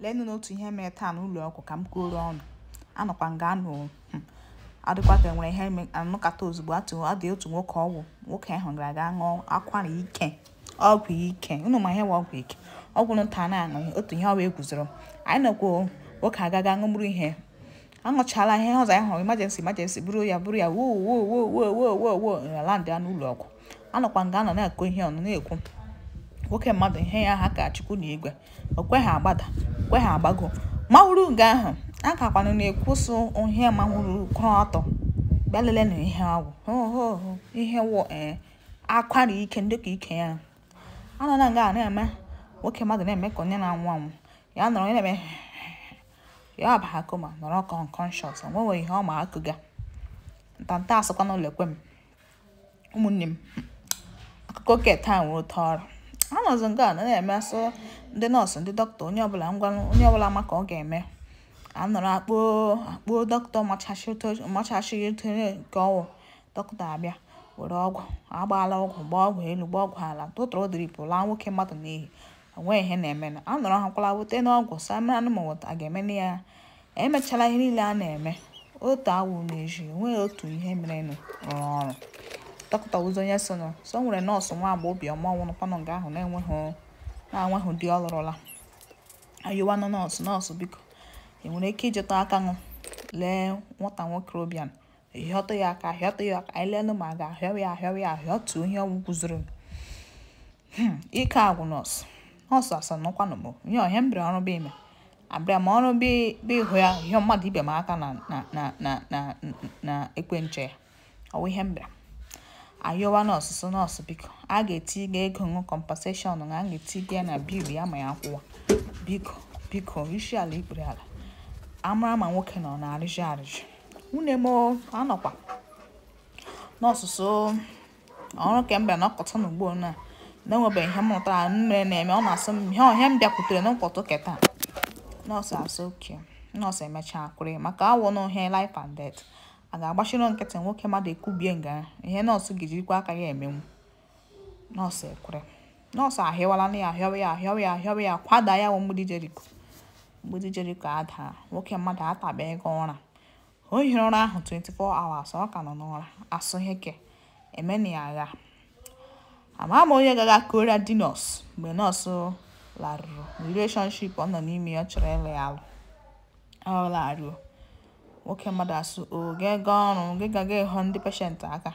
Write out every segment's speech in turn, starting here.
leenụ n'otu ihe mere taa n'ụlọ ọgwụ ka m kwuoro ọnụ anọkwa nga anụ adịkwata nwere ihe anụkata ozugbo adị otu nwoke ọgwụ nwoke ahụ gara aga ṅụọ akwara ike ọgwụ ike ụnụ ma ihe nwe ọgwụ ike ọgwụ nta na-aṅụ otu ihe ọwa eguzoro anyị nọkwa nwoke agaga ṅụmụrụ ihe aṅụchala ihe ọzọ ya hụrụ imajensi imajensi bụrụ ya bụrụ ya woo woo woo woo woo woo woo landị ya n'ụlọ ọgwụ anọkwa nga anọ na-akụ ihe ọnụ na-ekwu nwoke mmadụ ihe ya ha ka chukwu na igwe o kweghị agbada kweghị agbago mahụrụ nga ahụ a kakwanụ na-ekwusụ ihe mahụrụ kwụrụ ọtọ bịa lele na ihe ọgwụ ihe wụ ee akwara ike ndị ka ike ya anọ na nga na-eme nwoke mmadụ na-eme ka onye na-anwụ anwụ ya nọrọ na-eme ya ọbaha koma nọrọ kọnkọnshọt onwewe ihe ọma ma akụga ntanta asụkwa n'ụlọ ekwe m ụmụnne m akụkọ ket taa nwere ụtọ ọrụ a nke a na-eme asụ ndị nọọsụ ndị dọkịta onye ọbụla ngwa onye ọbụla maka ọ ga-eme anọrọ akpọ akpọ dọkịta machachịghị tonye nke ọwụ dọkịta abịa were ọgwụ agbaala ọgwụ gbaa ọgwụ elu gbaa ọgwụ ala tụtụrụ diripụ laa nwoke mmadụ n'ihi onweghị ihe na-eme na anọrọ ha kwala wute n'ọgwụ samra anụmanụ a ga-eme na ya emechala ihe niile a na-eme otu awụ na-eji otu ihe merenụ rụọ ọrụ dọkịta onye sị na so nwere nọọsụ nwa agba obiọma nwụrụkwanụ nga ahụ na-enweghị na-anweghị di ọlụrụla lụrụla ayụwanụ nọọsụ nọọsụ biko ị nwere ike ijeta aka nụ lee nwata nwoke Obiano ahịọtụ ya aka ahịọtụ ya aka anyị leenụ ma a ga ahịọ ya ahịọwa ya ahịọtụ ihe ọgwụ guzoro hmm, ike agwụ nọọsụ nọọsụ asanụkwanụ bụ nye ọhịa m ọrụ bụ ime abịa ma ọrụ bụ ịhụ ya ihe mmadụ ibe m aka na na na ya ihe m ayowa nọọsụ nọọsụ biko a ga-etiga ego ṅụ kọmpaseshọn na a ga-etiga ya na biil ya ma ya kwụwa biko biko rishi ala ikpere ala amara ma nwoke nọ na arịjụ arịjụ nwunye m anọkwa n'ọsụsụ ọrụ kemgbe nọkọta n'ugbo na na-enwebeghị ihe m mụtara mmere na-eme ọ na-asụ m ihe ọhịa m bịakwutere na mkpọtụ keta nọọsụ asụ oke nọọsụ emechaa akwụrụ maka awụ na life and death a ga-agbachiri nkịtị nwoke mmadụ ekubie nga ihe nọọsụ gijirikwa aka ya emenwu nọọsụ ekwere nọọsụ ahịwala na ya ahịawa ya ahịawa ya ahịawa ya kwada ya nwe mgbidi jeriko mgbidi jeriko adaa nwoke mmadụ atabe ego ụra o hiri ụra ahụ 24 hours ọ ka nọ n'ụra asụ heke emena ya agha ama m onye gaga koria di nọọsụ mgbe nọọsụ larụrụ relationship ọ nọ n'ime ya ọ chọrọ ịlụ ya alụ ọ laruo nwoke mmadụ asụ o gị ga ọrụ gị ga ga ịhụ ndị peshent aka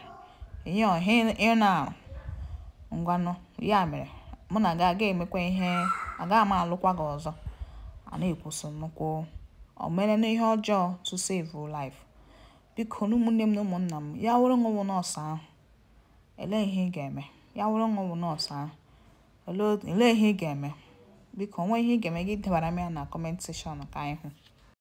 ihe ọha ị na-arụ ngwanụ ya mere mụ na gị aga emekwa ihe agaghị m alụkwa gị ọzọ a na-ekwuso nnukwu omere na ihe ọjọọ to save life biko na ụmụnne m na ụmụnna m ya wụrụ nwụwụ nọọsụ ahụ elee ihe ị ga-eme ya wụrụ nwụwụ nọọsụ ahụ elee ihe ị ga-eme biko onwe ihe ị ga-eme gị debara m ya na kọment sekshọn ka anyị hụ